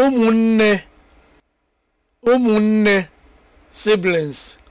ụmụnne ụmụnne siblings